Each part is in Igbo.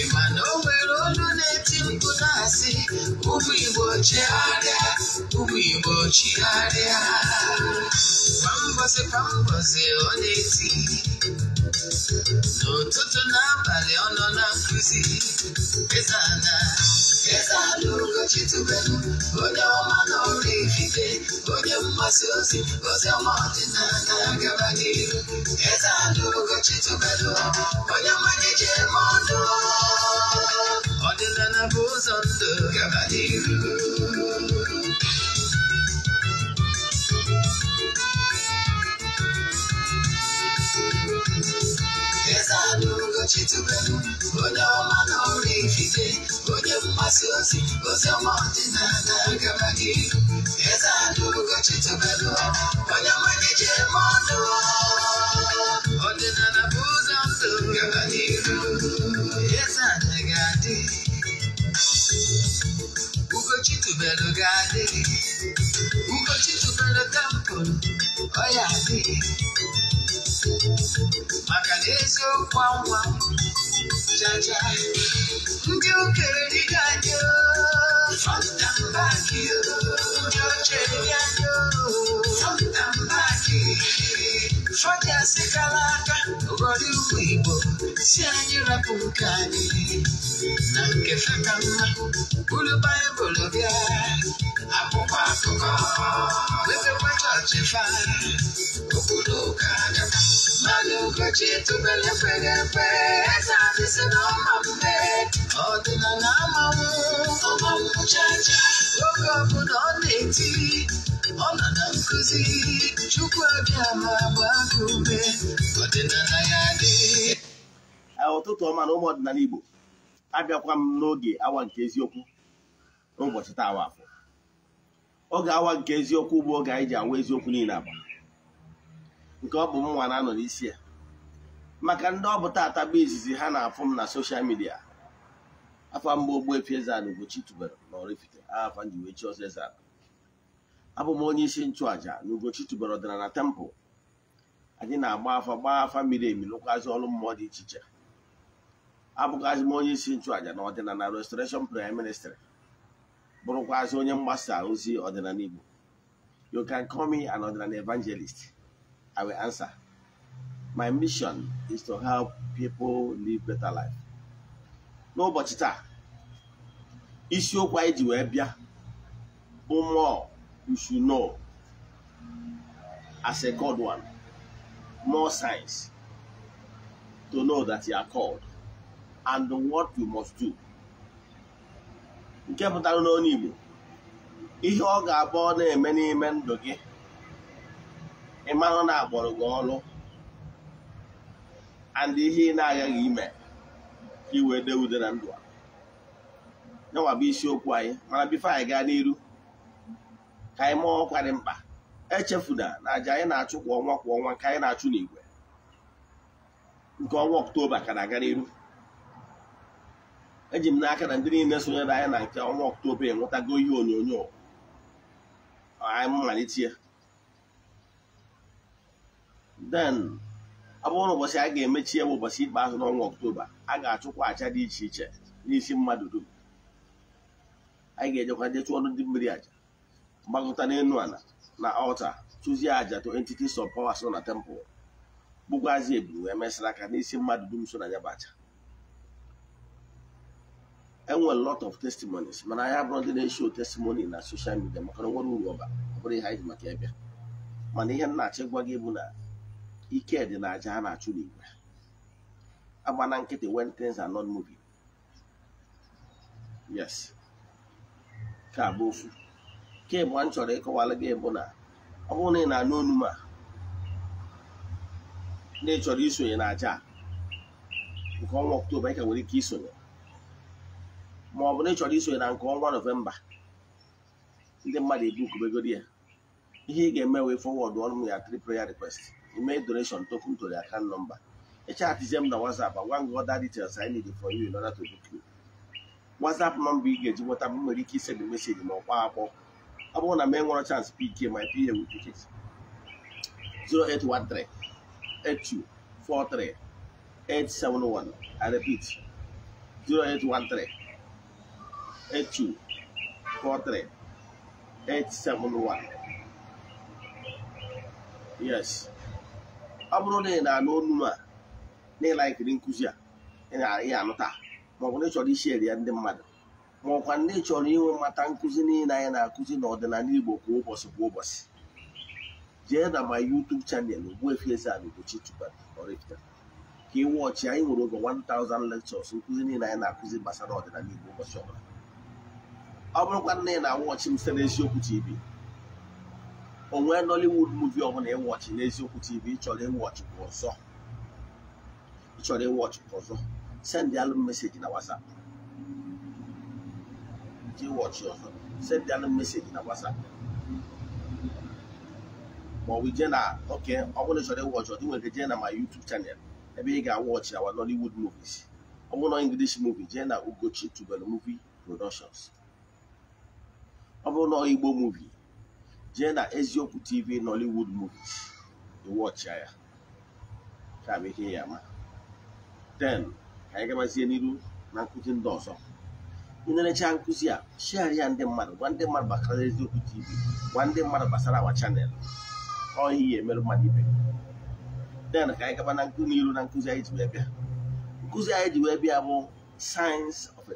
Ịmana o nwere olu na-eti mkpu na-asị ụmụ Igbo chigharịa ụmụ Igbo chigharịa kwa mbọsị kwa mbọsị ọ na-eti n'ụtụtụ n'abalị ọ nọ na eti mkpu na asi umu igbo chigharia umu igbo chigharia kwa mbosi kwa ta lórúkọ jésù bẹ́ẹ̀ onye ọma n'ọrụ ikike onye mgbasa ozi ozi ọma ọdịnala na-agaba n'ihu eze a lórúkọ jésù bẹ́ẹ̀ onye mmanye ji eme ọnụ ọdịnala bụ ụzọ ndụ gaba n'ihu eze a lórúkọ jésù bẹ́ẹ̀ onye ọma n'ọrụ ikike of my sins, but I want to go back Yes, I do go to the bed. When I'm a DJ, But then I'm a booze, I'm so I Who go to Who go to temple. Oh, yeah, I did. jaja ndị okere dịga anyị ndị ochie anyị onye sikala aka ghọrọ ugwu Igbo si anyị rapụ nke anyị na nke feka mma buru baịbụl bịa akwụkwọ akụkọ wepekwa chọọchị fa obodo ụka adaka mmadụ ụbọchị tụbele kwere ekwe na ọma mme chacha oge ọbụla ọ na-eti ọnọdụ nkuzi chukwu abịa ma gbaa ume ọdịnala ya dị ụtụtụ ọma na ụmụ ọdịnala Igbo abịakwa m n'oge awa nke eziokwu n'ụbọchị taa awa afọ oge awa nke eziokwu bụ oge anyị ji awa eziokwu niile agba nke ọ bụ m nwa na-anọ n'isi ya maka ndị ọ bụ taata bụ izizi ha na-afụ m na soshal midia afọ mgbe Ogbuefi Eze-Ana Ugochi tubelu na Oraifite aha afa njiwechi ọzọ Eze-Ana abụ m onye isi nchụàja n'Ugochi Ugochi na tempụl anyị na-agba afa gbaa afa miri emi lụkwazị ọrụ mmụọ dị iche iche abụkwazị m onye isi nchụàja na ọdịnala restoration prayer ministry bụrụkwazi onye mgbasa ozi ọdịnala Igbo you can call me an ọdịnala evangelist I will answer my mission is to help people live better life n'ụbọchị taa isiokwu anyị ji wee bịa bụ mmụọ you should know as a God one more signs to know that you are called and what you must do. nke pụtara n'ọnụ Igbo ihe ọ ga-abụ ọ na-eme n'ime ndụ gị ịmanụ na-agbọrọ gị ọrụ and ihe ị na-agaghị ime ka iwee dee na ndụ a yanwa bụ isiokwu anyị mana bifo anyị gaa n'iru ka anyị ma ọkwa dị mkpa echefuna na aja anyị na-achụ kwa ọnwa kwa ọnwa ka anyị na-achụ n'igwe nke ọnwa ọktoba ka na-aga n'iru eji m n'aka na ndị niile sonyere anyị na nke ọnwa ọktoba enwetago ihe onyonyo anyị mmalite ya den ọ bụrụ ụbọchị a ga-emechi ya bụ ụbọchị ikpeazụ n'ọnwa ọktoba a ga-achụkwa aja dị iche iche n'isi mmadụ dum anyị ga-ejekwa ọnụ ndị mmiri aja gbagota n'elu ala na ọlta chụzie aja to entities of power so na temple gbụgwazi eburu wee mesịrị aka n'isi mmadụ dum so na ya bụ enwere lot of testimonies mana anya abụrụ ndị na-esho testimony na social midia maka na nwere uru ọba ọ bụrụ ihe anyị maka ebe mana ihe m na-achọ gwa gị bụ na ike dị na aja a na-achụ n'igwe agbana nkịtị when things are not yes ka bụ ofu nke ịbụa m chọrọ ịkọwara gị bụ na ọ bụrụ na ị na-anụ olu a na ị chọrọ isonye na aja nke ọnwa ọktoba ị ka nwere ike isonye ma ọ bụ na ị chọrọ isonye na nke ọnwa nọvemba ndị mmadụ ebukobegoro ya ihe ị ga-eme wee fọwọd ọnụ ya tri prayer request ime donation token to the nọmba number echatizie m na WhatsApp gwa m ọda details anyị need for you in order to nọmba ị ga-eji nweta m nwere ike isend meseji ma ọ akpọ ọ bụrụ na m enwere chance PK my PA will 0813 I repeat 0813 yes ọ bụrụ na ị na-anụ olu a na ịlaikiri nkụzi a ị na-anụ taa maọbụ na ị chọrọ isheri ya ndị mmadụ ma ọkwa ndị chọrọ inwe mmata nkụzi niile anyị na-akụzi n'ọdịnala Igbo kwa ụbọchị kwa ụbọchị jee na ma YouTube chanel Ogbuefi Eze-Ana Ugochi Chibadi ka ị ọchị anyị nwere over 1000 lectures nkụzi niile anyị na-akụzi gbasara ọdịnala Igbo ụbọchị ọbụla ọ bụrụkwa nne na wọchị m site n'eziokwu TV onwe Nollywood muvi ọbụla ịwọchị n'eziokwu TV ịchọrọ ịwọchị kwa ọzọ send ya meseji na WhatsApp gye watch your send them a message na whatsapp ma ọ bụ ije na oke ọ bụrụ na ịchọrọ ịwọchị ọ dị nwere je na ma YouTube channel ebe ị ga awọch awa Nollywood movies ọ bụrụ na English movie jee na Ugochi Tubelu movie productions ọ bụrụ na Igbo movie jee na eziokwu TV Nollywood movies ịwọchịa ya ka ya ka anyị gabazie n'iru na nkụzi ndị ọzọ ị na nkụzi a share ya ndị mmadụ gwa ndị mmadụ gbasara eziokwu tv gwa ndị mmadụ gbasara awa chanel ọhịa ihe emerụ mmadụ ibe den ka anyị gaba na nkụ n'iru na nkụzi anyị ji wee bịa nkụzi anyị ji wee bịa bụ sayensị of a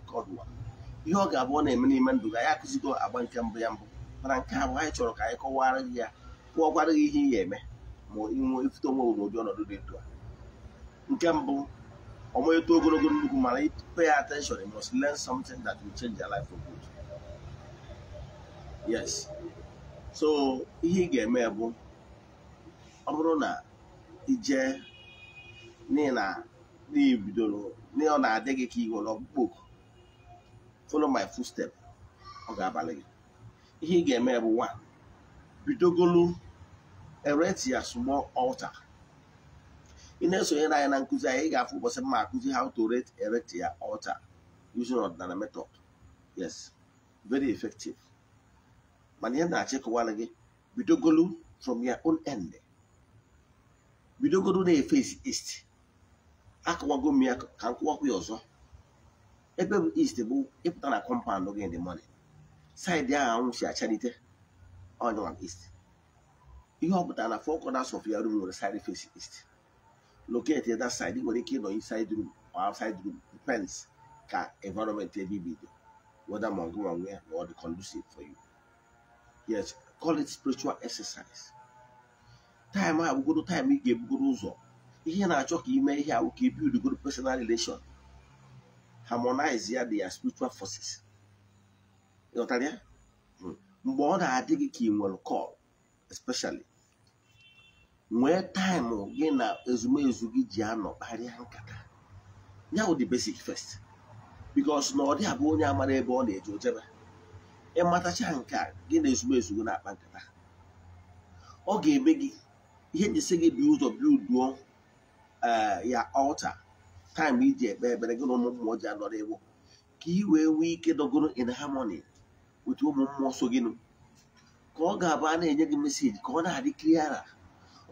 ihe ọ ga-abụ ọ na-eme n'ime ndụ ga ya akụzigo agba nke mbụ ya mbụ mana nke abụ anyị chọrọ ka anyị kọwara gị ya kụọkwara gị ihe ị ga-eme ma ịnwe ifute onwe n'ụdị ọnọdụ dị a nke mbụ ọmọ eto ogologo nnukwu mana pay attention you must learn something that will change your life for good yes so ihe ị ga-eme bụ ọ bụrụ na ije n'ihi na n'ibidoro na-adị gị ka ị nwere follow my step ọ ga-abalị gị ihe ị ga-eme bụ nwa bidogolu erect ya small altar ị na-esonyere anyị na nkụzi anyị ị ga-afụ ụbọchị mma akụzi how to rate erect ya altar using ọdịnala method yes very effective mana ihe na-achị kụwara gị bidogolu from your own end bidogolu na-efesi east akụwago m ya ka m kụwakwa ya ọzọ ebe bụ east bụ ịpụta na kọmpaụnd gị dị mọni saịdị ahụ anwụ si achalite ọnyụwa east ihe ọ pụtara na fọkọ corners of ya room nwere side face east locate the other side ị nwere ike ịnọ inside room or outside room depends ka environment ebe ibi dị whether ma ọgụ nwe ya or the conducive for you yes call it spiritual exercise time a bụgoro time ị ga-ebugoro ụzọ ihe na-achọ ka ime ihe ahụ ka ibidigoro personal relation harmonize ya the spiritual forces you ịghọtara ya mgbe ọ na-adị gị ka ị nwere call especially nwee taịmụ gị na ezumezu gị ji anọ kparịa nkata ya bụ the basic first because na ọ dị abụ onye amara ebe ọ na-eje ojebe ịmatacha nke a gị na ezumezu gị na-akpa nkata ọ ga-eme gị ihe njisi gị bi ụzọ bilduo eh, ya ọlta taịm iji ekpe ekpere gị na ụmụ mmụọ ji anọrọ ewu ka ị wee nwee ike dọgoro in harmony otu ụmụ mmụọ so gịnụ ka ọ ga-abụ a na-enye gị meseji ka ọ na-adị kliara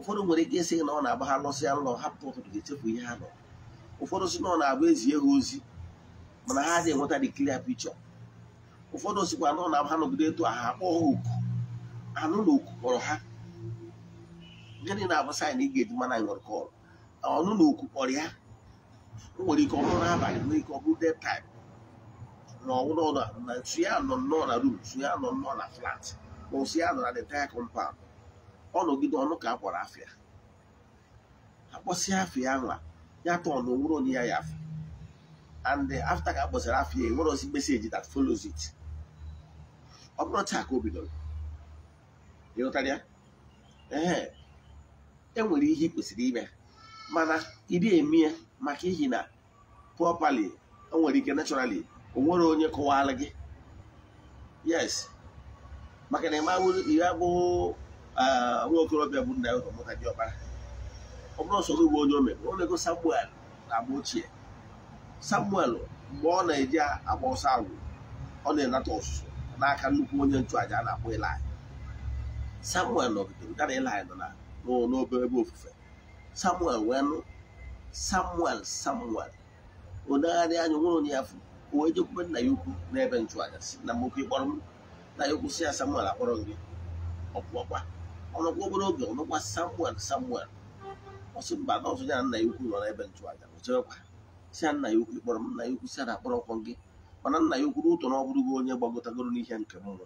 ụfọdụ nwere ike ịsị na ọ na-agba ha lọsị nlọ hapụ ụtụtụ ga chefu ihe ha nọ ụfọdụ sị na ọ na-abụ ezie ha ozi mana ha adịghị enweta dị klia picture ụfọdụ sịkwa na ọ na-abụ ha nọgide etu ha akpọ ha oku anụ na oku kpọrọ ha gịnị na-abụ saịn ị ga-eji mana nwere ọnụ na oku kpọrọ ya o nwere ike ọ bụrụ n'abalị nwere ike ọ bụrụ dead time na ọwụna na nsu ya nọ nnọọ na room nsu ya nọ nnọọ na flat ma nsu ya nọ na the entire ọ nọgide ọnụ ka a kpọrọ afịa afia afịa nwa ya tọ ọnụ nwụrụ onye ya ya afọ and afta ka a afia afịa enwere ozi meseji that follows it ọ bụrụ taa ka o bidoro ịghọtara ya ee enwere ihe ị kwesịrị ime mana ịdị eme ya maka ihi na properly enwere ike naturally onwere onye kọwara gị yes maka na ị abụghị Ah, nwa okorobịa bụ nna ya ụzọ mụta diọkpara ọ bụrụ ọsọ gị onye o mere ọ na-ego samuel na agba ochie samuel mgbe ọ na-eji agba ọsọ agwụ ọ na-enata ọsụsụ n'aka nnukwu onye nchụaja a na-akpọ ilaị samuel nọgidere gara ilaị nọ n'obere ebe ofufe samuel wee nụ samuel samuel odegharị anya nwere onye ya furu wee jekwube nna ya ukwu n'ebe nchụaja si na nwoke kpọrọ m na ya ukwu si ya samuel akpọrọ gị ọkpụọkwa ọnọkwa obere oge ọnọkwa samuel samuel ọsị mba nọọsụ ya nna ya ukwu nọ n'ebe nchụaja ọchebekwa si ya nna ya ukwu kpọrọ m nna ya ukwu si na akpọrọkwọ gị mana nna ya ukwu n'ụtọ na ọ bụrụgo onye gbagotagoro n'ihe nke mmụọ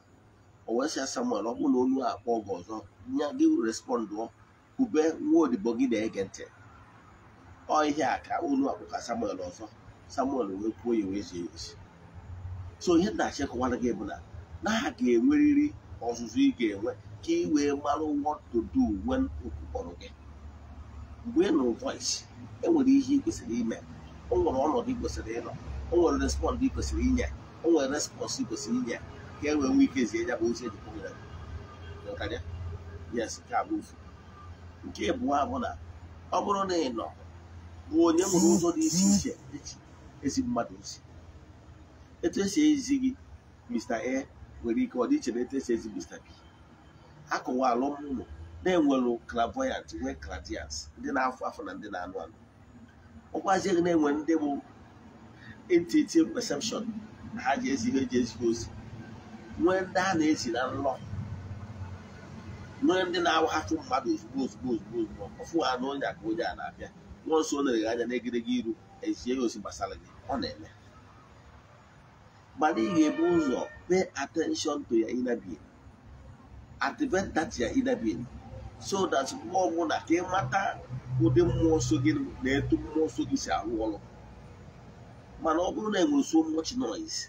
o wee sị ya samuel ọ bụrụ na olu akpọ gị ọzọ nya gị respọndụọ kube nwa odibo gị na-ege ntị ọ ihe a ka olu akpụ ka samuel ọzọ samuel wee kwuo ya wee zie ezi so ihe nna achịkọwara gị bụ na na ha ga enweriri ọzụzụ ị ga-enwe ka ị mara what to do when okwu gị mgbe ị nụrụ voice e nwere ihe ị kwesịrị ime o nwere ọnọdụ ị kwesịrị ịnọ o nwere respond ị kwesịrị inye o nwere respons ị kwesịrị inye ka e nwee nwee ike zie ya bụ ozi ejikọ nyere gị yes nke a bụ ofu nke abụọ bụ na ọ bụrụ na ị nọ bụ onye nwere ụzọ dị iche iche eji ezi mmadụ ozi etu esi ezi gị Mr. A nwere ike ọ dịiche na etu esi ezi Mr. B akụwalụ ụlọ na-enwelụ klavoyant nwee clairvoyance ndị na-afụ afọ na ndị na-anụ anụ ụkwazigị na-enwe ndị bụ intuitive perception na ha ji ezighị eji ezighi ozi nwee ndị a na-esi na nlọ nwee ndị na-awahapụ mmadụ ozugbo ozugbo ozugbo ozugbo ọfụ ha na onye aka onye a na-abịa nwa nso o na eghe anya n'egedege iru ezie ya ozi gbasara gị ọ na-eme mana ị ga-ebu ụzọ pay atenshọn to ya adventati ya ịdabeghị so that mgbe ọbụla ka ịmata ụdị mmụọ nsọ gị na etu mmụọ nsọ gị si arụ ọrụ mana ọ bụrụ na enwere so much noise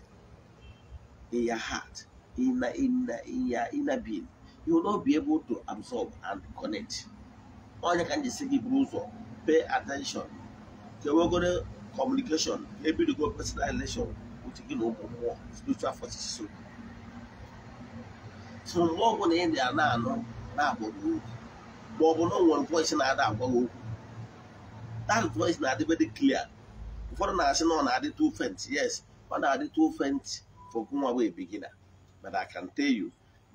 in your heart in your inner you will be able to absorb and connect onye ka m gị buru ụzọ pay attention kewegoro communication go personal relation with gị spiritual so mgbe ọ ị dị na-anụ na-agwa gị okwu ma ọ bụ na o nwere na-ada agwa gị okwu that voice na-adịbe dị clear ụfọdụ na-asị na ọ na-adị too faint yes ọ na-adị too faint for nwa wee bigina but I can tell you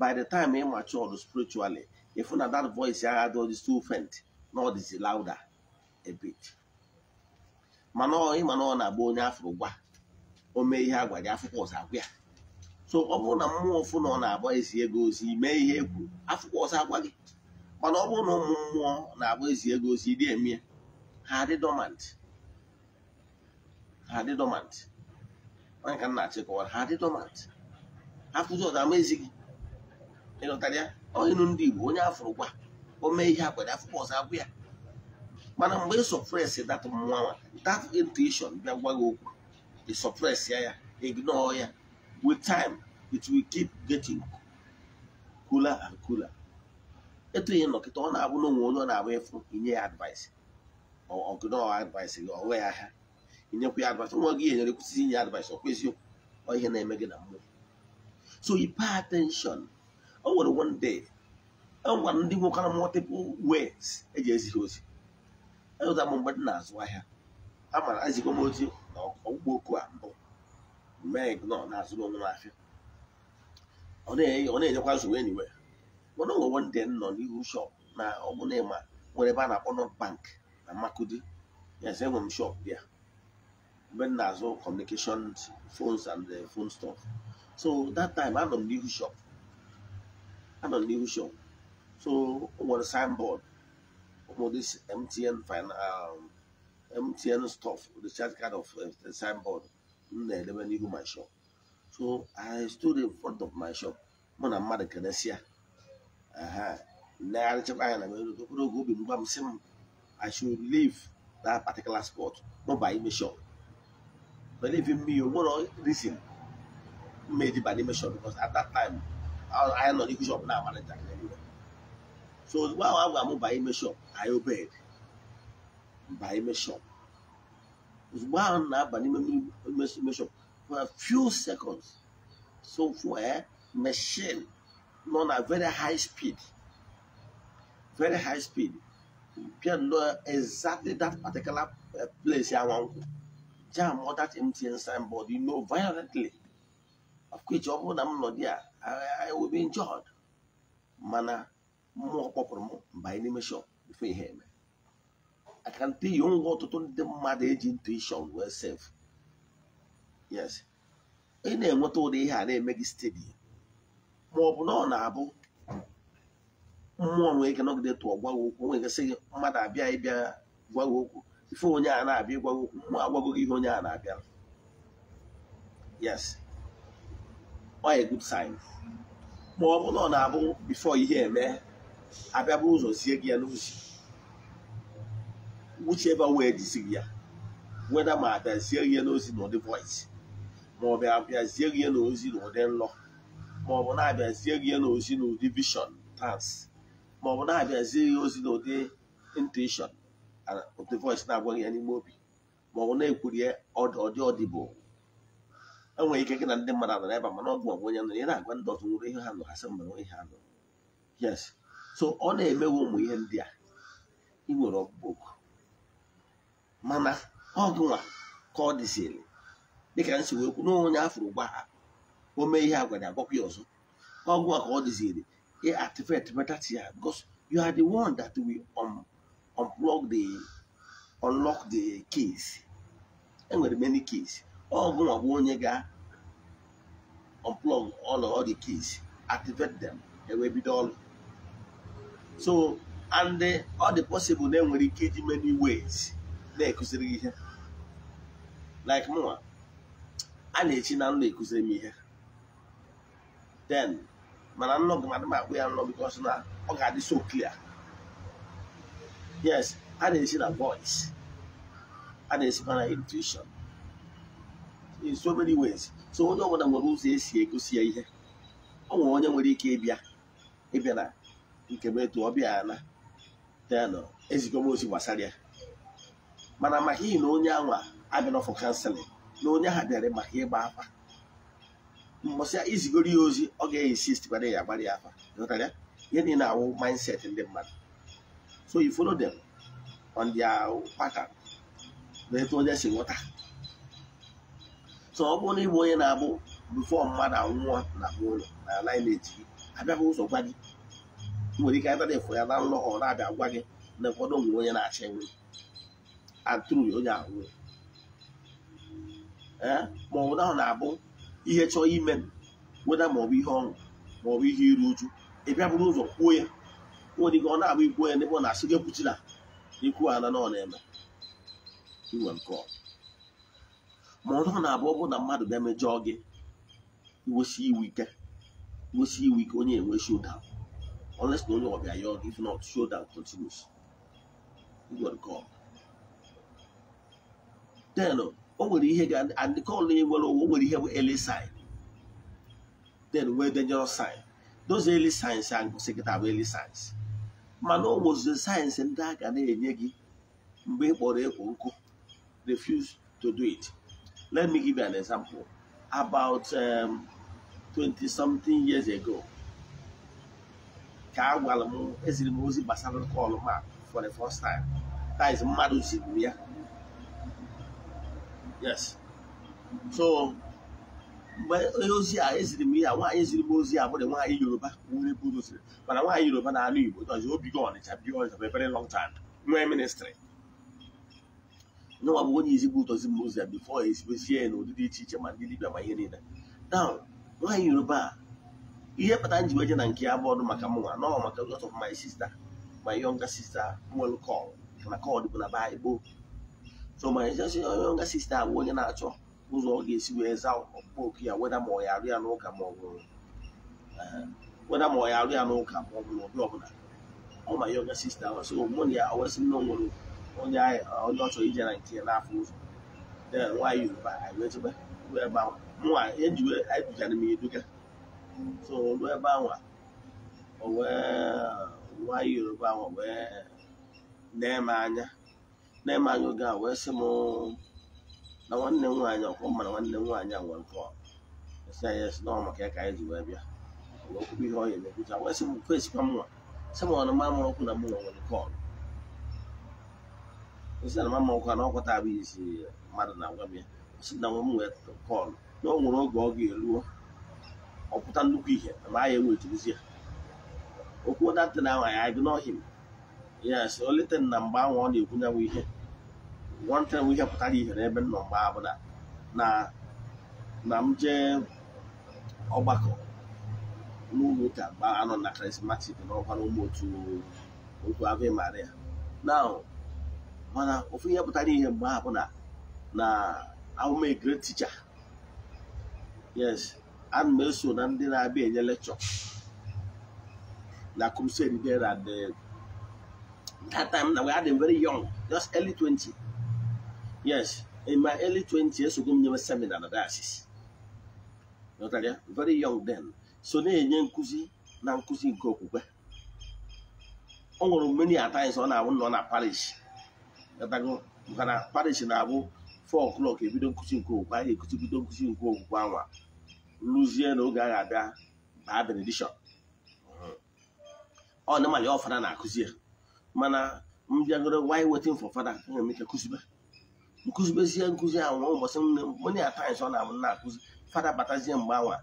by the time ị mature spiritually ịfụ na that voice ya adị ọdị too faint na ọ dịzi louder a bit mana ịma na ọ na-agba onye afụrụ gwa o mee ihe agwa gị afụkwọ ọzọ agwa ya so ọ bụrụ na mmụọ ọfụ na ọ na-agba ezi ego ozi mee ihe egwu kwuru afụkwa ọsọ agwa gị mana ọ bụrụ na ụmụ mmụọ na-agba ezi ego ozi dị eme ha adị dormant ha adị dormant ka nna na-achịkọwara ha adị dormant afụzi ọzọ ama ezi gị ịlọtara ya ndị Igbo onye afụrụ gwa o mee ihe akwere afụkwa ọzọ agwa ya mana mgbe ị sọpres dat mmụọ nwa dat intuishọn bịa gwa gị okwu ị sọpres ya ya ignọọ ya with time it will keep getting cooler and cooler. etu ihe nnọkịta ọ na-abụ n'onwe onwe onye ọ na-agba ịfụ inye ya advice ọgụnọọ advice gị ọwe ya ha inyekwa ya advice nwa gị enyere kwụsịsị inye advice ọkwa eziokwu ọ ihe na-eme gị na mmụọ so yi pay attention o nwere one day e nwere ndị nwekwara multiple ways eji ezi ha ozi enweta m mgbe dị na-azụ ahịa amara ezigbo m ozi na ọgwụgwọ oku a mbụ mee nke nọ na ahịa ọ m afịa ọ na-enyekwa nsogbu enyi mana ndị nọ n'ihu shop na ọbụna ịma nwere ebe a na-akpọ nọt bank na Makudi yes enwe m shọp bịa mgbe m na-azụ communication phones and phone stuff so that time anọ m n'ihu shọp anọ m n'ihu shop so o signboard this MTN, fin- um, MTN stuff, the chat kind of uh, signboard. m na my shop so i stood in front of my shop i na mmadụ keresịa nlegharịchakwa anya should leave that particular spot buy me shop believe in me o nwere reason mmeji by n'ime shop because at that time anyị nọ n'ihu shop now. so ozugbo ahụ a gwara m baa shop I obeyed Buy me shop ozugbo ahụ na-aba n'ime meshọp for a few seconds so for fuel eh, machine nọ na very high speed very high speed bịa nọ exactly that particular eh, place ya nwankwụ jam all that MTN signboard you know violently of course ọ bụrụ na m nọ dị a I will be injured mana mmụọ kpọpụrụ m mbanye n'ime shop before ihe eme I can tell you ọtụtụ ndị mmadụ eji intuition wee sef yes ị na-enweta ụdị ihe a na-eme gị stedi ma ọ bụ na ọ na-abụ mmụọ nwere ike nọgide tụọ gwa gị okwu nwere ike sị mmadụ abịa ịbịa gwa okwu ife abịa ihe onye na-abịa yes ọ a good sign ma ọ bụ na ọ na-abụ bifo ihe eme abịa bụ ụzọ sie gị ya n'uzi whichever way jisiri ya weda ma abịazie ihe n'ozi na ụdị voice ma ọ bụ abịazie ihe n'ozi na ụdị nlọ ma na-abịazie ihe n'ozi na ụdị vishọn tans ma na-abịazie ihe ozi na ụdị intuition ụdị voice na-agwaghị ya n'ime obi ma na ekwurie ọdị ọdịbụ enweghị ike gị na ndị mmadụ nọ ebe mana ọ bụ onye nọ ị na-agwa ndị ọzọ nwere ihe ha nọ ha sị mgbere ha nọ yes so ọ na-emewe ụmụ ihe ndị a ị nwere ọkpụkpọ mana ọ ka ọ dịziri dịka m si wee kwu n'onye afụrụ gwa ha o mee ihe agwa ya agwakwa ya ọzọ ọ ka ọ dịziri e activate metatia ya because you are the one that will unplug the unlock the keys enwere many keys ọgụnwa gị bụ onye ga unplug all of the keys activate them ewee bido ọrụ so and ọ dị possible na enwere ike iji many ways na-ekụziri gị ihe like mụnwa a na-echi na nna ekụziri m ihe then mana nnọ gị madụ ma akpụ ya nnọ bikos na ọ ga-adị so clear yes a na echi na voice a na-esikwa na intuition in so many ways so onye ọbụla nwere ụzọ esi egosi ya ihe ọ nwere onye nwere ike ịbịa ịbịa na nke m etu ọ bịa na then ezigbo m ozi gbasara ya mana maka ihi na onye anwa abịanọfụ kanselịn na onye ahụ bịara maka ịgba afa mbọsịa izigoro ya ozi ọ ga-esist gbara ya agbara ya afa ihe na awụ mindset ndị mmadụ so you follow them on their pattern na etu onye si nwụta. so ọ bụrụ na ịbụ onye na-abụ before mmadụ anwụọ na ụlọ na anaghị na-eji gị abịaghị ụzọ gwa gị nwere ike abịa na ya na nlọ ọ na-abịa gwa gị na ụfọdụ onwe onye na-achọ enwe atụrụ ya onye ahụ ee eh? ma ọ bụ na ọ na-abụ ihe chọọ ime weda ma ọ bụ ihe ọṅụ ma ọ bụ ihe iru uju bịa bụrụ ụzọ kwuo ya nwere ike ọ na-abụ ikwuo ya n'ebe na-asị gị kwuchila ikwu ala na ọ na-eme iwe nke ọ ma ọ na-abụ ọ na mmadụ bịa mejọọ gị iwesi iwu ike iwesi iwu ike onye enwe showdown unless na onye ọbịa ya ọgụ if not showdown continues iwe nke ọ then o nwere ihe ga-adịkọlụ e nwere ụwa nwere ihe bụ early sign then were dangerous sign those early signs a ngụsị gị bụ early signs mana ọ nwụzi sayensị ndị a ga na-enye gị mgbe ị kpọrọ nkụ refuse to do it let me give you an example about um, 20 something years ago ka a gwara m eziri m ozi gbasara call map for the first time that is mmadụ ziri ya yes so mgbe onye ozi a eziri m ya nwaanyị eziri m ozi a bụrụ nwaanyị yoruba nwere ebe doziri mana nwaanyị yoruba na ala igbo dozi go ọnịcha bi ọnịcha bụ ebere long time nwee ministrị nyenwa bụ onye izigbo ụtọzi m ozi e ya bifo ezibezie ya na ụdị dị iche iche ma ndị dibịa ma ihe niile now nwaanyị yoruba ihe kpatara nji weje na nke ya bọọdụ maka mụnwa nọ maka lot of my sister my younger sister nwere kọl na kọl bụ na ba igbo so ma jesi onye ọga sista abụ onye na-achọ ụzọ ọ ga-esi wee za okwu ya weda ma ọ ya arụ ya n'ụka ma ọ bụ weda ma ọ ya arụ ya n'ụka ma ọ bụ n'ụdị ọbụla ọma yoga sista so mụ na ya owesị nne nwere onye onye ọ chọrọ ije na nke n'afọ ụzọ nwaanyị yoruba ebe ahụ nwa ejiwe edugara m eduga so ruo ebe ahụ o wee nwaanyị yoruba ahụ wee nee m anya na-eme anyị oge a wee sị m na nwanne m nwaanyị ọkwọ na nwanne m nwaanyị a nwere kọl esi anyị esi maka ya ka anyị ji wee bịa okwukwe ihe ọya na wee sị m esikwa sị m ọnụ na mụ na nwere kọl esi na mamụ ọkwa na ọkwọta abụ isi mmadụ na-agwa m ya si na nwe m nwee kọl na ọ nwere oge ọ ga-eruo ọpụta nnukwu ihe ma anyị ya okwu ahụ anyị agụ n'ọhịa ya si na mgbe ahụ ọ na-ekwu ihe one time ihe pụtara ihe n'ebe nọ mgbe abụla na na m jee ọgbakọ n'ụlọ ụka mgbe anọ na krismatik na ọkwara ụmụ otu okwu ave maria na mana ofu ihe pụtara ihe mgbe abụla na ahụm a great teacher yes ana m eso na ndị na-abịa enye lekchọ na crusade ndị at that time na we had a very young just early 20 Yes, in my early 20 years ago, m seminar na diocese ya very young then so na-enye nkuzi na nkụzi nke okwukwe ọ nwụrụ many a times ọ na-abụ nọ na parish maka na parish na-abụ 4 o'clock ebido nkuzi nke okwukwe anyị ekuzibido nkuzi nke okwukwe anwa rụzie na oge agha abịa baa benediction ọ na ọ ọfada na-akụzi ya mana mbịagoro bịagoro why waiting for fada aga m kụzibe nkụzibezie nkụzi ahụ nwa ụbọchị mony times ọ na-abụ na-akụzi fada batazie mgbe anwa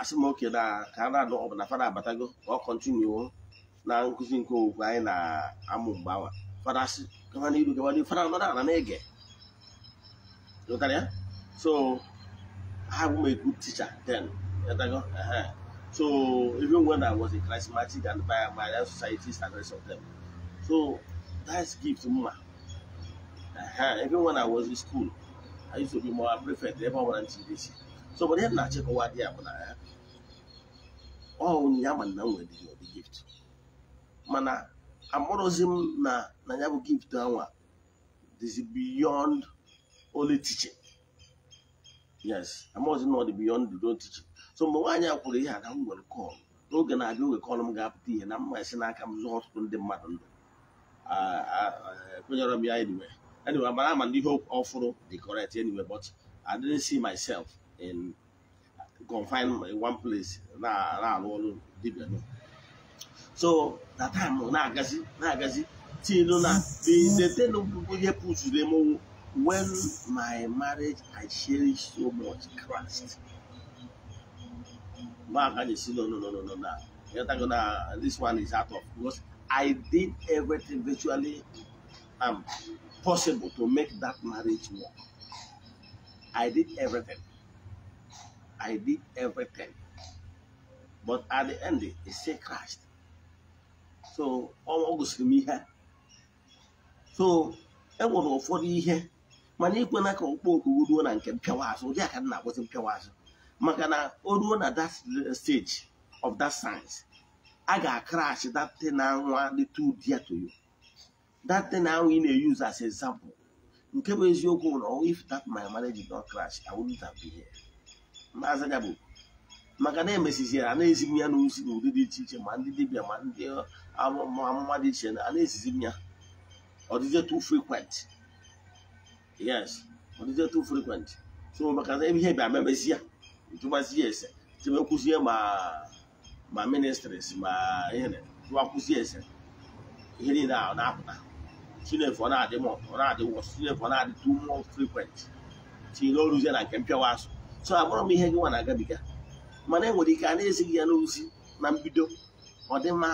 asị m oke na ka a na-anụ ọ bụ na fada abatago ka ọ kọntinuo na nkụzi nke owukwe anyị na-amụ mgbe anwa fada asị gawa n'iru gawa n'iru fada nọrọ ala na-ege so ha bụ m a good teacher then so even when I was in charismatic and by my societies and rest of them so that's gift mma even when I was in school, I used to be more prefect ebe ọ bụla ntidesi so obodo ihe na-achịkọwa dị ya bụ na ya ọnye ya ma na nwere gift mana amụrụzi m na na ya bụ gift anwa dịzi beyond only teaching yes amụrụzi na beyond the teaching so mgbe nwaanyị a kwuru ihe a ka m nwere n'oge na-abịa oge kọl m ga-apụta ihe na isi n'aka m ọtụtụ ndị mmadụ ndụ kwenyere m ya anyway anyway I'm ma ndị ihe ọfụrụ the correct anyway but I didn't see myself in confined in one place Nah, nah, alụ ọrụ that no so na time na nah, gazi. See tilu na the ten ihe pụzuru m when my marriage I cherish so much Christ ma ka ji no no no no na yatago na this one is out of course. I did everything virtually um, possible to make that marriage work. I did everything. I did everything. But at the end, it still crashed. So, all August me here. So, I was for the year. mana ikwe na ka okpoko ruo na nke mpịawa azụ ụdị aka na in mpịawa azụ maka na o ruo na that stage of that science I got crashed that thing na nwa little dear to you that thing ahụ ị na-use as example nke bụ eziokwu na if that my marriage did crash I wouldn't have been here maazị bụ maka na emesiziere a na-ezigbu n'ụdị dị iche iche ma ndị dibịa ma ndị amụma dị iche a na-ezizi m ya too frequent yes too frequent so maka na ihe bịa memezi ya ya ese tibekwuzie ma ma ministries ma ihe jụwakwuzie ese ihe niile na-apụta chinefu na-adị m ọ na-adị wọs chinefu ọ na-adịtụ mụọ frekwent tinye oruzie na nke mpịawa so abụrụ m ihe gị nwa na-agabiga mana enwere ike a na-ezighị ya n'ozi na mbido ọ dị mma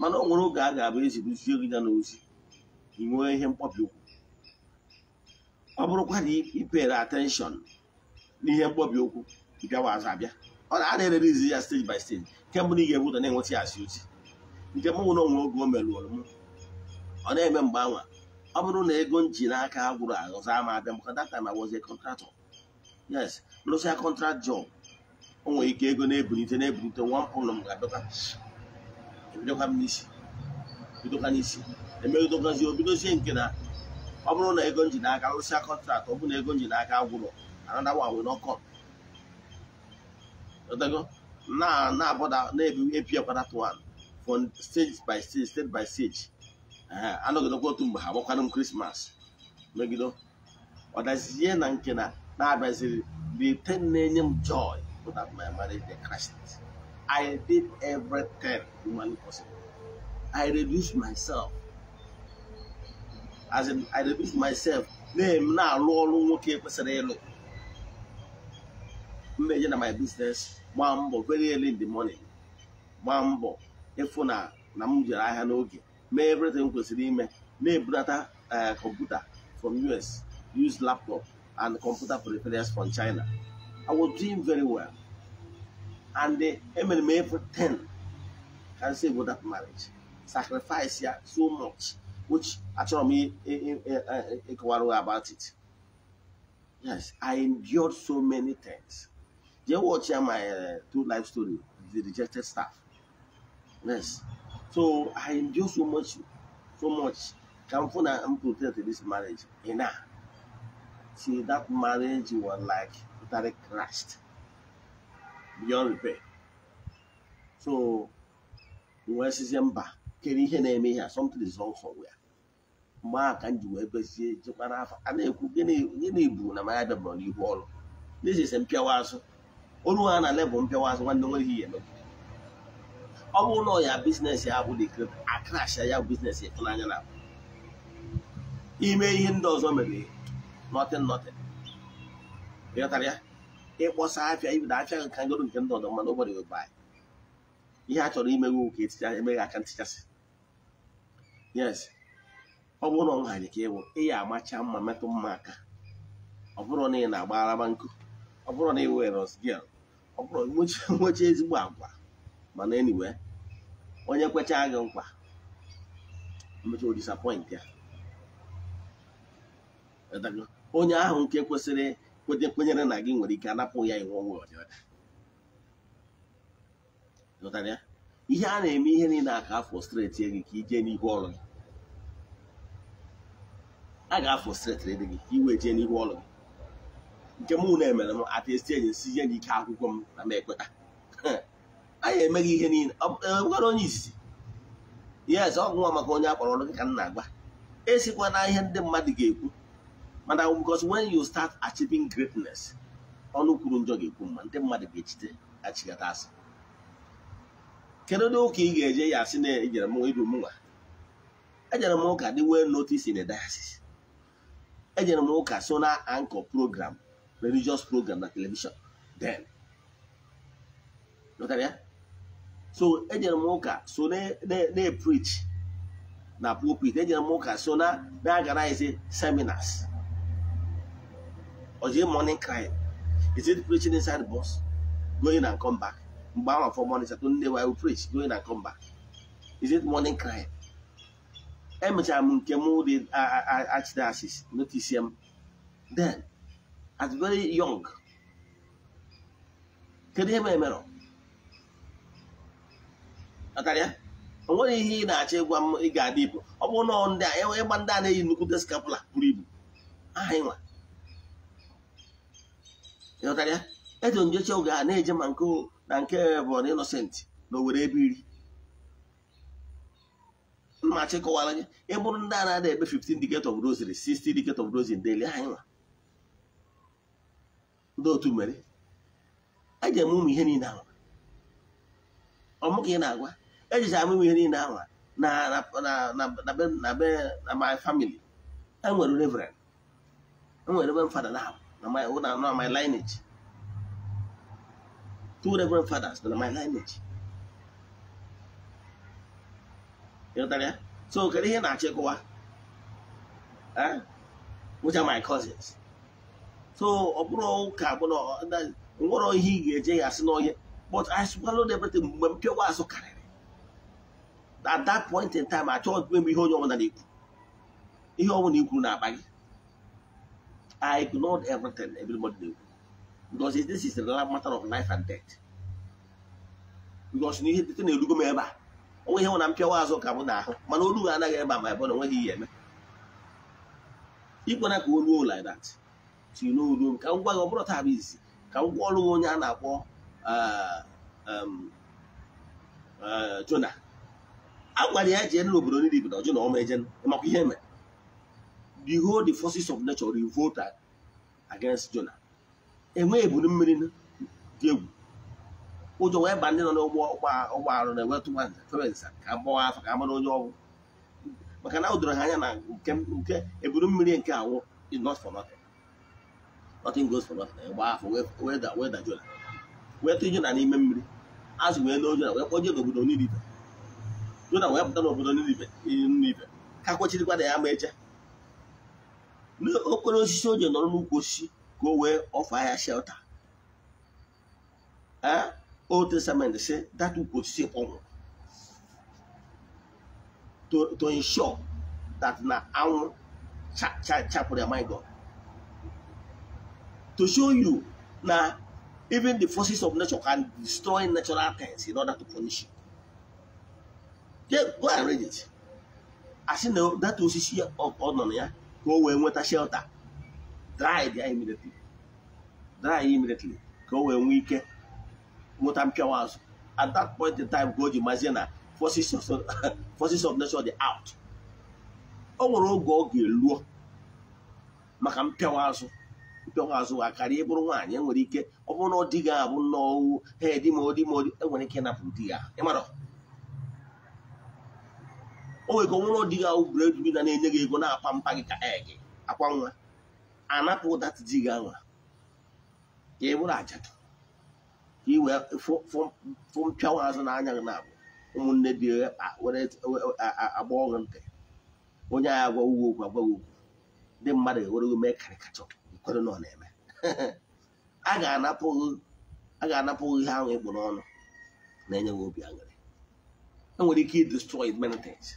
mana o nwere oge a ga-abụ ezibụzie gị ya n'ozi ị nwee ihe mkpọbi okwu ọ bụrụkwa na ipere atenshọn n'ihe mkpọbi okwu bịawa azụ abịa ọ na-adịrịrị izi ya steji by steji kemgbe mbụ na ị ga-ebudo na-enweta ya asị ozi nke mụnwụ nwere onwe oge o merụrụ m ọ na-eme mgbanwe ọ bụrụ na ego m ji n'aka agwụrụ aghọzọ ama abịa maka data ma wozie kọntratọ yes lụsịa kọntrakt jọb o nwere ike ego na-ebulite na-ebulite nwa mkpụrụ m ga-abịakwa e m n'isi bidokwa n'isi emedogazi obidozie nke na ọ bụrụ na ego nji n'aka rụsịa kọntraktị ọ bụrụ na ego nji n'aka gwụrụ anadawa wee nọkọ na na abọda na-ebi epiakwa that one from stage by stage state by stage anọgidekwa otu mgbe ha agbakwanụ m krismas megide ọdazie na nke na-abịaziri the thing na-enye m joy bụ that my marriage dey crashed I did everything humanly possible I reduced myself as in I reduced myself na-eme na-alụ ọrụ nwoke kwesịrị ịlụ mmeje na my business gbaa mbọ very early in the morning gbaa mbọ ịfụ na na m jere ahịa n'oge mee everything kwesịrị ime na-ebudata kọmputa from us use laptop and computer peripherals from china i was doing very well and emere m everything can say about that marriage sacrifice ya so much which achọrọ m ịkọwara about it yes i endured so many things jee watch my uh, two life story the rejected staff yes So I endure so much, so much. Thankful that I'm protected this marriage. And now, see that marriage was like totally crashed beyond repair. So nwee sizie mba kere ihe na-eme ihe something is wrong somewhere. mgbe a ka m ji wee gbezie jekwa n'afọ a na-ekwu gịnị bụ na mara bịabụrụ n'ihu ọrụ n'eziese mpịawa azụ olu ha na lebụl mpịawa azụ nwanne nwere ihe ya emegbu ọ bụ ụlọ ya bizinesi ya bụ dikret akrash ya bizinesi ịtụnanya na ime ihe ndị ọzọ mere nọtin nọtin ịghọtara ya ịkpọsa afịa ibido afịa gị ka ngoro nke ndị ọzọ mana ụbọchị gị baa ihe a chọrọ imeghe ka eticha emeghị aka ntichasị yes ọ bụrụ na ọ nhaji ka ịwụ ịya amacha mma metụ mma aka ọ bụrụ na ị na araba nkụ ọ bụrụ na ị were ọsgil ọ bụrụ nwechi ezigbo agwa mana eniwe onye kwechaa gị mkpa mmecha o ya onye ahụ nke kwesịrị kwete kwenyere na gị nwere ike anapụ ya iwu onwe ya ihe a na-eme ihe niile a ka afọ streti gị ka ije n'ihu ọrụ gị a ga-afọ streti gị ka iwe jee n'ihu ọrụ gị nke mụ na-emere m atestie ji si nye gị ike akwụkwọ m na m ekweta anyị emeghị ihe niile gwara e, onye izizi yes ọ nwa maka onye akpọrọ ọrụ gị ka m esikwa na ihe ndị mmadụ ga-ekwu mana because when you start achieving greatness ọnụ kwuru njọ ga-ekwu mma ndị mmadụ ga-echite achịgata asị kedu ndị ụka ị ga-eje ya asị na ejere m iru m ejere m ụka dị wee notice in dayasis diocese ejere m ụka so na anchor program religious program na televishon then so ejere m ụka so na-eprich na pulpit ejere m ụka so na na-agarize e seminars oji morning crying is it preaching inside the bus going and come back mgbe ahụ for morning saturday nne will preach going and come back is it morning crying emechara m nke m dị archdiocese notice m then at very young kedu ihe mere mere akarịa o nweghị ihe ị na-achọ ịgwa m ị ga-adị ibu ọ bụrụ na ndị a e ịgba ndị a na-eyi nnukwu skapula buru ibu aha ịnwa ịghọtara eji njechi oge a na-eje ma nke na nke bụ na ịnọsentị na owere ebe iri mmachi kọwara gị ịbụrụ ndị a na-ada ebe 15 decade of rosary 60 decade of rosary daily aha ịnwa ndị otu mere eji eme ụmụ ihe niile ahụ ọmụ ka ị na-agwa ejizi amụ m ihe niile ahụ na my family enwere reverend enwere ebe fada na my lineage two reverend fathers na my lineage ịghọtara ya so kedu ihe na-achịkwa which are my cousins so ọ bụrụ ụka bụrụ nwere ihe ị ga-eje ya asị n'ọhịa but I swallowed everything mgbe m pịawa asụ karị at that point in time achọghị ikwe m ihe onye ọbụla na-ekwu ihe ọbụla ikwu na-akpa gị I ignored everything everybody na-ekwu because this is the matter of life and death because na ihe dịte na-erugo m ebe a onwe ihe na mpịawa azụ ka m na-ahụ mana olu anaghị ebe a ma ebe na onweghị ihe eme ịkwena ka oluo like that ti n'oluo ka m gwa gị ọ bụrụ taa bụ izi ka m gwa ọrụ onye a na-akpọ uh, um, uh, Jona a gwara ya jee obodo niile ibodo ọjọ na ọma eje makwa ihe e mere the whole the forces of nature revolted against Jonah enweghị eburu mmiri dị egwu ụjọ wee ba ndị nọ n'ụgbọ ụgbọ arụ na-ewetụwa ferensa ka gbawa afọ ka amara onye ọgwụ maka na o ha anya na nke nke eburu mmiri nke awụ is not for nothing nothing goes for nothing gba afọ wee dajụla wee tụ Jona n'ime mmiri azụ wee n'ojo na wee kpoje n'obodo niile Juda wee pụta n'obodo Ninive Ninive ka kwechirikwana ya ma eche n'okpere osisi o ji nọrọ n'ukwu osisi ka o wee ọfọ ahịa shelta a Old Testament sị data ukwu osisi kpọnwụ to ensure that na anwụ chapụrụ ya my God to show you na even the forces of nature can destroy natural things in order to punish you. Get, go and read it. asị na data osisi ọ nọ na ya ka o wee nweta shelter dry ya immediately dry immediately ka o wee nwee ike nweta mpịawa azụ at that point in time ka o ji mazie na forces of of nation dị out o nwere oge ọ ga-eluo maka mpịawa azụ mpịawa azụ a karịa ịbụrụ nwaanyị enwere ike ọ bụrụ na ọ dịghị abụ nnọọ head ma ọ enwere ike ịnapụ di ya o nwere ka ọ dị di gị ahụ bred na na-enye gị ego na-akwa mpa gị ka ee gị akwa nwa anapụ dat ji gị anwa ka ị bụrụ ajadu ka ị wee fụ mpịanwa azụ n'anya gị na-abụ ụmụnne bi agba ọrụ ntị onye agha agwa ugwu okwu agwa okwu ndị mmadụ ewere gị mee karịkachọ kwere na ọ na-eme a ga-anapụ ihe ahụ ịkpụ ọnụ na-enye gị obi aṅụrị enwere ike i destroy many things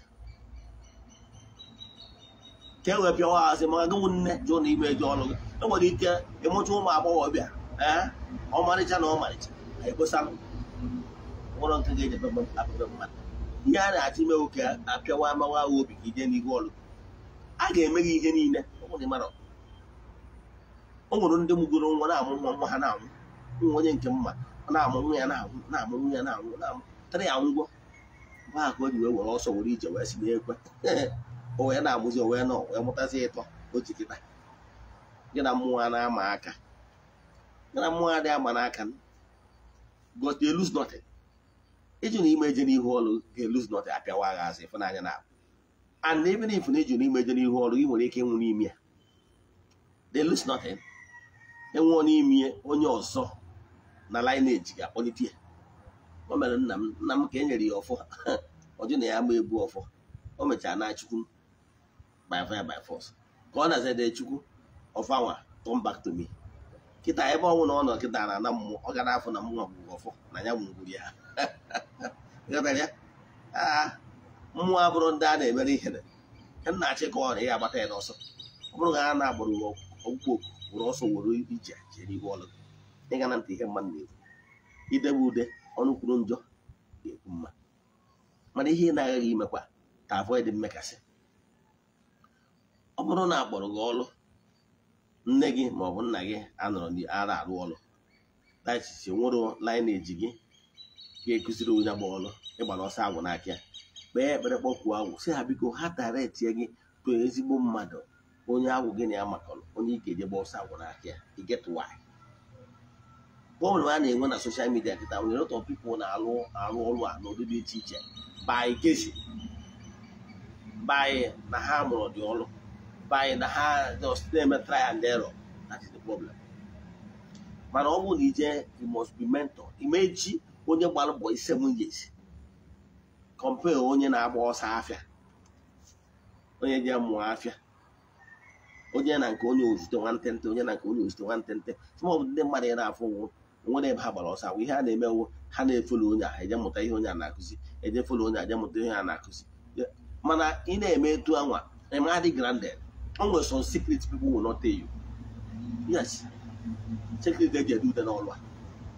ka e wee pịawa hazi ma nne jụọ na ime ejọ ọnụ e nwere ike ịmụta ụmụ agbọghọbịa ee ọmarịcha na ọmarịcha ekposanụ ụlọ nke ga-eji apebe mmadụ ihe a na-achọ imewu obi ka ije n'ihu ọlụ a ga-eme gị ihe niile o nwụrụ ndị mụgoro nwa na-amụ nwa ha na onye nke mma na-amụ nwa ya na na na na a ha ka were ọsọ ije si o wee na-amụzi o nọ wee mụtazi ịtọ o ji kịta gị na mmụọ a na-ama aka gị na mmụọ adịghị ama n'aka because they lose nothing ịjụ na ime eje n'ihu ọrụ ga-elose nothing apịawa agha azụ ịfụnanya na abụ and even if na ịjụ na ime eje n'ihu ọrụ ị nwere ike ịnwụ n'ime ya they lose nothing enwụọ n'ime onye ọzọ na lineage ga-akpọlite ya o mere nna m nna m ka e nyere ya ọfọ ọjụ na ya ma ebu ọfọ o mechara na chukwu m by fire by force ka ọ na-aza dee chukwu ọfanwa turn back to me kịta ebe ọnwụ na ọ nọ kịta na-ana mmụọ ọ gara na-afụ na mmụọ gwụrụ ọfọ na ya nwụgwuru ya ah, mmụọ abụrụ ndị a na-emere ihere nna-achị ka ọ na ya agbata ya n'ọsọ ọ bụrụ na ha na-agbara ọgwụgwọ oku were ọsọ were ije jere ihu ọlụ ịga na ntị ihe mmadụ na-ekwu idebe ude ọnụ kwuru njọ ga-ekwu mma mana ihe ị na-agaghị imekwa ka mmekasị ọ bụrụ na akpọrọ gị ọrụ nne gị ma ọ bụ nna gị anọrọ ara arụ ọrụ na echiche nwere lineage gị ga-ekụziri onye agba ọrụ ịgbara ọsọ agwụ n'aka ya kpee ekpere kpọkwuo agwụ si ha biko ha tara etinye gị tụọ ezigbo mmadụ onye agwụ gị na ya makọrọ onye ike gba ọsọ agwụ n'aka ya igetụwaanyị problem a na-enwe na soshal midia nkịta nwere ụtọ of na-alụ arụ ọrụ a n'ụdị dị iche iche by kesi by na ha mụrụ dị ọrụ by na ha just na-eme try and error that is problem mana ọ bụ na ije you must be mentor imeji onye gbara mbọ seven years compare onye na-agba ọsọ afịa onye ji mụọ afịa onye na nke onye ozute nwantente onye na nke onye ozute nwantente some of ndị mmadụ ị na-afụ ụgwọ nwere a gbara ọsọ ihe a na ha na-efolo onye a eje mụta ihe onye a na-akụzi eje folo onye a eje mụta ihe a na-akụzi mana ị na-eme etu anwa always some secrets people will not tell you yes secret they do then all right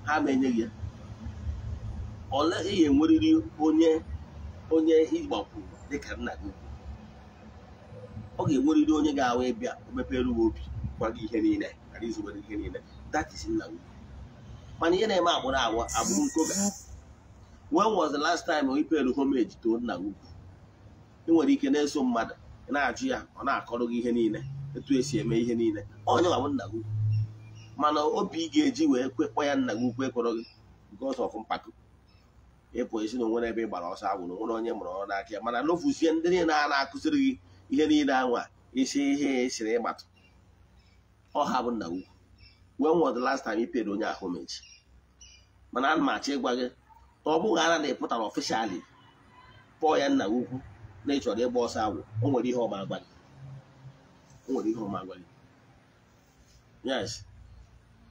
ha ma enye gị ole ihe enwerịrị onye onye ịgbakwuru dịka nna gị ọ ga-enwerịrị onye ga-awa ịbịa mepere uwe obi gwa gị ihe niile ghara izubere ihe niile that is nna gị mana ihe na-eme agbụrụ agwa agbụrụ nkoga when was the last time we paid homage to nna gị ị nwere ike na-eso mmadụ na-ajụ ya ọ na-akọrọ gị ihe niile etu esi eme ihe niile onye nwa bụ nna gị mana obi ị ga-eji wee kwekpọ ya nna gị ukwu ekwere gị nke ọzọ mpako ịpụ isi na ebe ị gbara ọsọ agwụrụ nwere onye mụrụ ọrụ n'aka ya mana n'ofuzie ndị niile a na-akụziri gị ihe niile anwa isi ihe esiri ịgbatụ ọha bụ nna gị ukwu when was the last time i onye ahụ meji mana ana m achọ ịgwa gị na ọ bụghị ara na ị pụtara ọfishali Pọọ ya nna gị ukwu na ị chọrọ ịgba ọsọ agwụ o nwere ihe ọma agwa o nwere ihe ọma agwa gị yes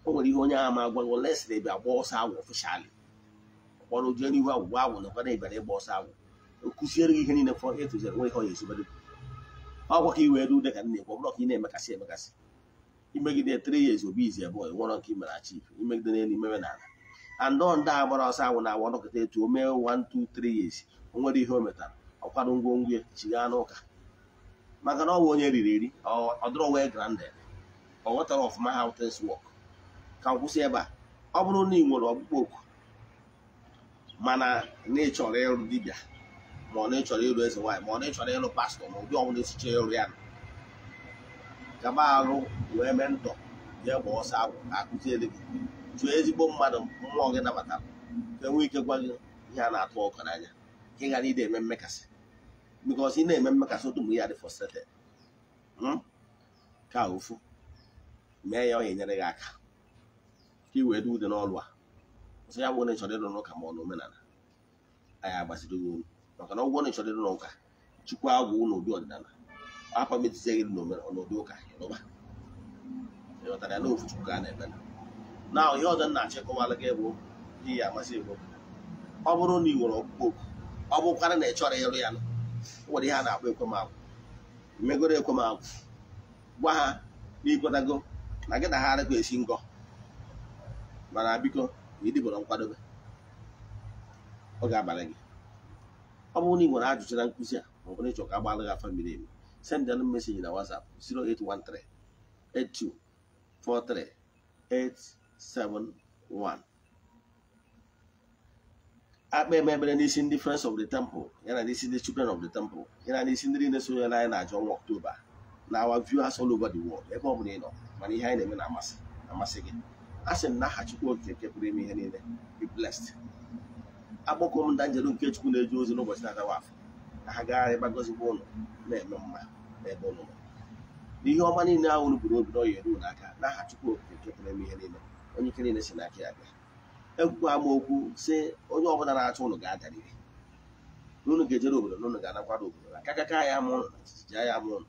o nwere ihe onye ama ma agwa gị oles na ebe ọsọ agwụ ofishali kpọrọ jee n'ihu agwụgwọ agwụ na ọkwana ịbịara ịgba ọsọ agwụ gị ihe niile fọ nwe ihe ọ ezubere ọgwa ka i wee ruo ka nna ekwu ọ ka ị na-emekasị emekasị imegide three years obi izi nke imere imegide n'elu ọsọ agwụ na-agwa etu o 2 3 o nwere ihe o metara ọkwado ngwongwo e ya n'ụka maka na ọ bụ onye riri eri ọ dịrọ wee granded ọ ghọtara ọfụma how things work ka m ebe a ọ bụrụ na ị nwere ọkpụkpọ oku mana na ị ịrụ dibịa ma ọ na ịchọrọ ịrụ eze nwaanyị ma ọ na ịrụ pastọ ma ụdị ọbụla esiche ịrụ ya gaba arụ wee mee ndọ ga gba ọsọ akụziere gị jụọ ezigbo mmadụ mmụọ gị nabatara ka enwee ike gwa gị ihe a na-atụ ọkụ n'anya ka ị ghara ide eme mmekasị because ị na-eme mmakasị otu mgbe ya dị hmm ka ofu mee ya ọ enyere gị aka ka i wee dị n'ọlụ a ọzọ ya bụ onye chọrọ n'ụka ma ọ na omenala anyị agbaziri unu maka na ọgwụ onye chọrọ ịrụ n'ụka agwụ ọdịnala afọ n'ụdị ụka ịlụba ya n'ofu chukwu ka a na-eme na ihe ọzọ nna ihe ya ọ bụrụ na ị nwere ọkpụkpọ na ị chọrọ ịrụ ya nwere ihe a na-akpọ ekwemagwụ megoro ekwemagwụ gwa ha na na gị na ha arịkọ esi ngọ mana biko na nkwadobe ọ ga gị ọ bụrụ na ị nwere ajụjụ na nkụzi a ma ọ bụrụ ịchọ ka gbalụ gị afọ mmiri emi send an meseji na WhatsApp 0813 8243 871 akpa emebere n'isi ndị friends of the temple ya na n'isi ndị children of the temple ya na n'isi ndị niile sonye anyị na-ajụ ọnwa ọktoba na awa viewers all over the world ebe ọ bụla ị nọ mana ihe anyị na-eme na-amasị amasị gị a sị m na aha Chukwu nke pụrụ ime ihe niile be blessed akpọkọ m ndanjelu nke Chukwu na eji ozi n'ụbọchị na adawa afọ ka ha gaa ebe gọzigbo ụlọ na-eme mma n'ebe ụlọ n'ihe ọma niile ahụ unu buru obi n'ọya eru n'aka n'aha Chukwu Okike nke pụrụ ime ihe niile onye ike niile si n'aka ya bịa ekwukwaa agba okwu sị onye ọbụla na-achọ ụlọ ga-adarịrị unu ga-ejere obodo na ga-anakwado obodo na akaka ya ama ụlọ na chichija ya ama ụlọ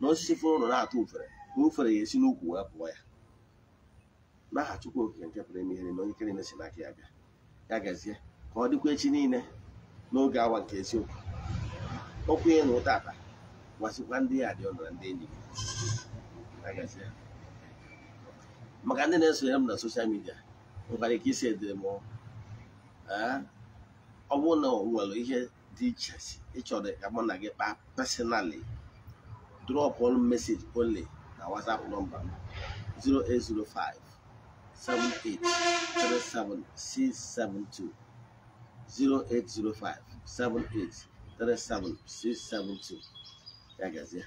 na osisi fụrụ ụlọ na-atụ ufere na ufere ya esi n'ukwu wee pụọ ya n'aha Chukwu Okike nke pụrụ ime ihe na onye n'aka ya bịa ya gazie ka ọ dịkwa echi niile n'oge awa nke eziokwu okwu ya na ụta ata gwasịkwa ndị ya dị ọnụ na ndị enyi maka ndị na-esonyere m na soshal midia nwekwara ike isi edemọ eh? ọ bụrụ na nwere ihe dị iche ịchọrọ ka mụ na gị kpaa personally drop one message only na whatsapp nọmba 0805 7837672 0805 7837672 ya gazie